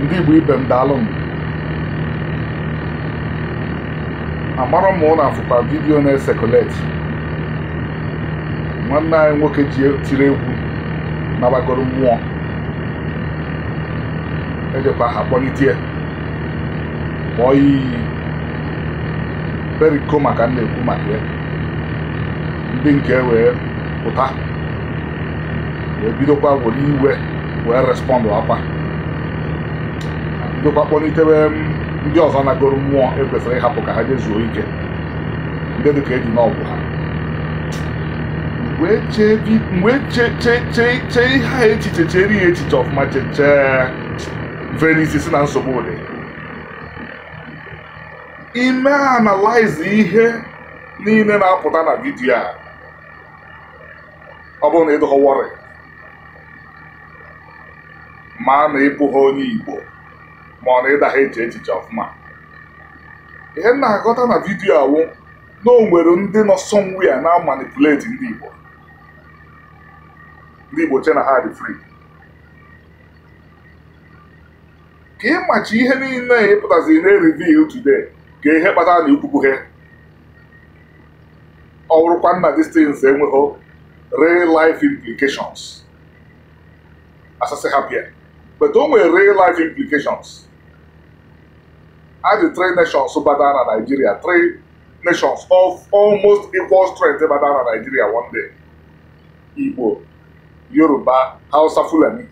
ndị Igbo ibe m daalụ m amarọ m ụlọ afụkwa vidiyo na-esekuleti nwanne anyị nwoke ji e, tiri egwu nabagoro mmụọ ejekwa ha kpọlitie kpọọ iyi beriko maka m na-ekwu maka ya ndị nke e wee pụta wee bidokwa were iwe wee respọndụ akwa bụkwa kpọlitewe ndị ọzọ anagoro mmụọ ekwesịrị ịhapụ ka ha jezuo ike ndị dịka eji n'ọgwụ ha mgbe chee ihe ha echiche chere ya echiche ọfụma chechee mfere si na nsogbu dị ime analaizi ihe niile na-apụta na vidiyo a ọ bụrụ na ịdọghọwọrị ma na ịbụghị onye Igbo ma ọ na ịda ha eche echiche ọfụma ihe na-aghọta na vidiyo awụ na o nwere ndị nọ somewhere na manipulate ndị Igbo ndị Igbo che na ha dị free ka ịmachi ihe niile ịpụtaziri e na e reveal today ka ihe kpatara na ikwupughe ọ bụrụkwa nna distance enweghị real life implications asasị ha bịa but o nwere real life implications as the three nations battled na Nigeria three nations of almost equal strength battled na Nigeria one day Igbo Yoruba Hausa Fulani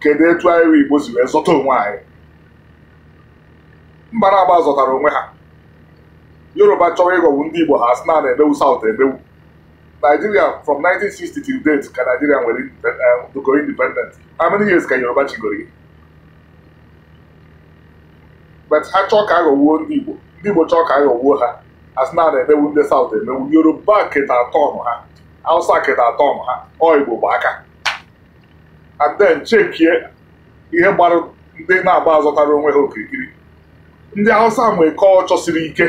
kedu etu anyị wee Igbo si wee zọta onwe anyị mba na-agba zọtara onwe ha Yoruba chọrọ ịghọgbu ndị Igbo ha na na-emewu South emewu Nigeria from 1960 till date ka Nigeria nwere doko eh, independent how many years ka Yoruba chigoro but ha chọọ ka aghọgbuo ndị Igbo ndị Igbo chọọ ka aghọgbuo ha asịna na-emewu ndị South emewu Yoruba keta ọnụ ha Hausa keta ọnụ ha ọ Igbo gba aka and chekie ihe gbara ndị na-agba azọtara onwe ha okirikiri ndị ausa nwee kọlchọ siri ike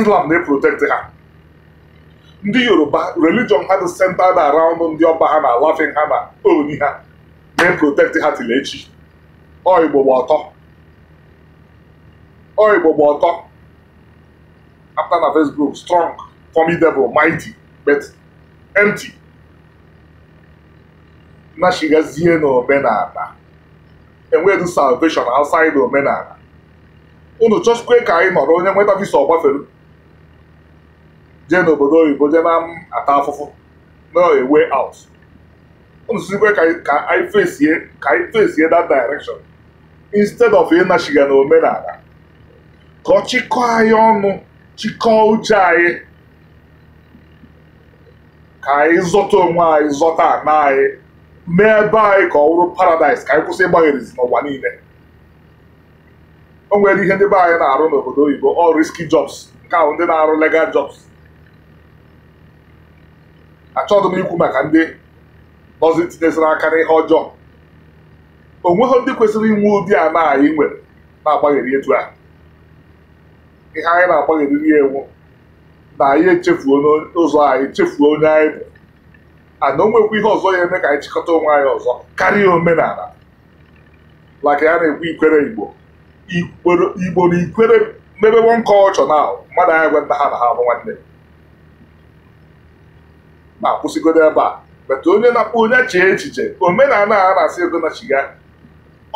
Islam na-eprotekti ha ndị Yoruba religion ha dị centered around ndị ọba ha na alafin ha na oni ha na-eprotekti ha tile echi ọ Igbo gba ọtọ Oraimo Boto. After na Facebook, strong, formidable, mighty, but empty. Na shigazie And where do salvation outside omenala. Unu chọchikwe ka anyị nọrọ onye nweta visa ọgbafere jee n'obodo oyibo jee na ata afụfụ na way out. Unu sikwe ka anyị fesie ka anyị fesie that direction instead of ịnashiga n'omenala. ka ọ anyị ọnụ chịkọọ uche anyị ka anyị zọta onwe anyị zọta ana anyị mee ebe anyị ka ọ bụrụ paradaịs ka anyị kwụsị ịgbagherizi n'ụwa niile o nwere ihe ndị be anyị na-arụ n'obodo oyibo ọ riski jobs nke ahụ ndị na-arụ lega jobs achọghị m ikwu maka ndị nọzi tinyesịrị aka n'ihe ọjọọ onweghị ndị kwesịrị inwe ụdị ana anyị nwere na agbanyere etu ahụ ihe anyị na-agbaghịrịrị ya enwu na anyị echefuo n'ụzọ anyị echefuo onye anyị bụ ana o nwekwa ihe ọzọ ya eme ka anyị chịkọta onwe anyị ọzọ karịa omenala ka ya na-ekwu ikwere igbo igbo na ikwere mebebo nke ọchọ na mmadụ anyị gwe nna ha na ha bụ nwanne ma kwụsịgodo ebe a bata onye na akpụ onye chee echiche omenala a na-asị ego na chiga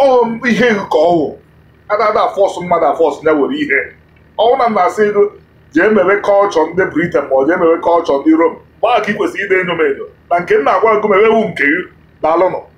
ọhụ ihe nke ọhụ adada fọs mmadụ afọsụ nya were ihe na m na-asị ego jee mewe kọlchọ ndị briten ma ọ jee mewe kọlchọ ndị rom gbaa ka ị kwesịrị ide enyo m enyo na nke m na-agwa gụ mewe nke gị daalụnụ